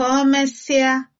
ka o mesịa